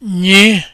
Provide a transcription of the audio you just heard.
nye